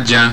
aja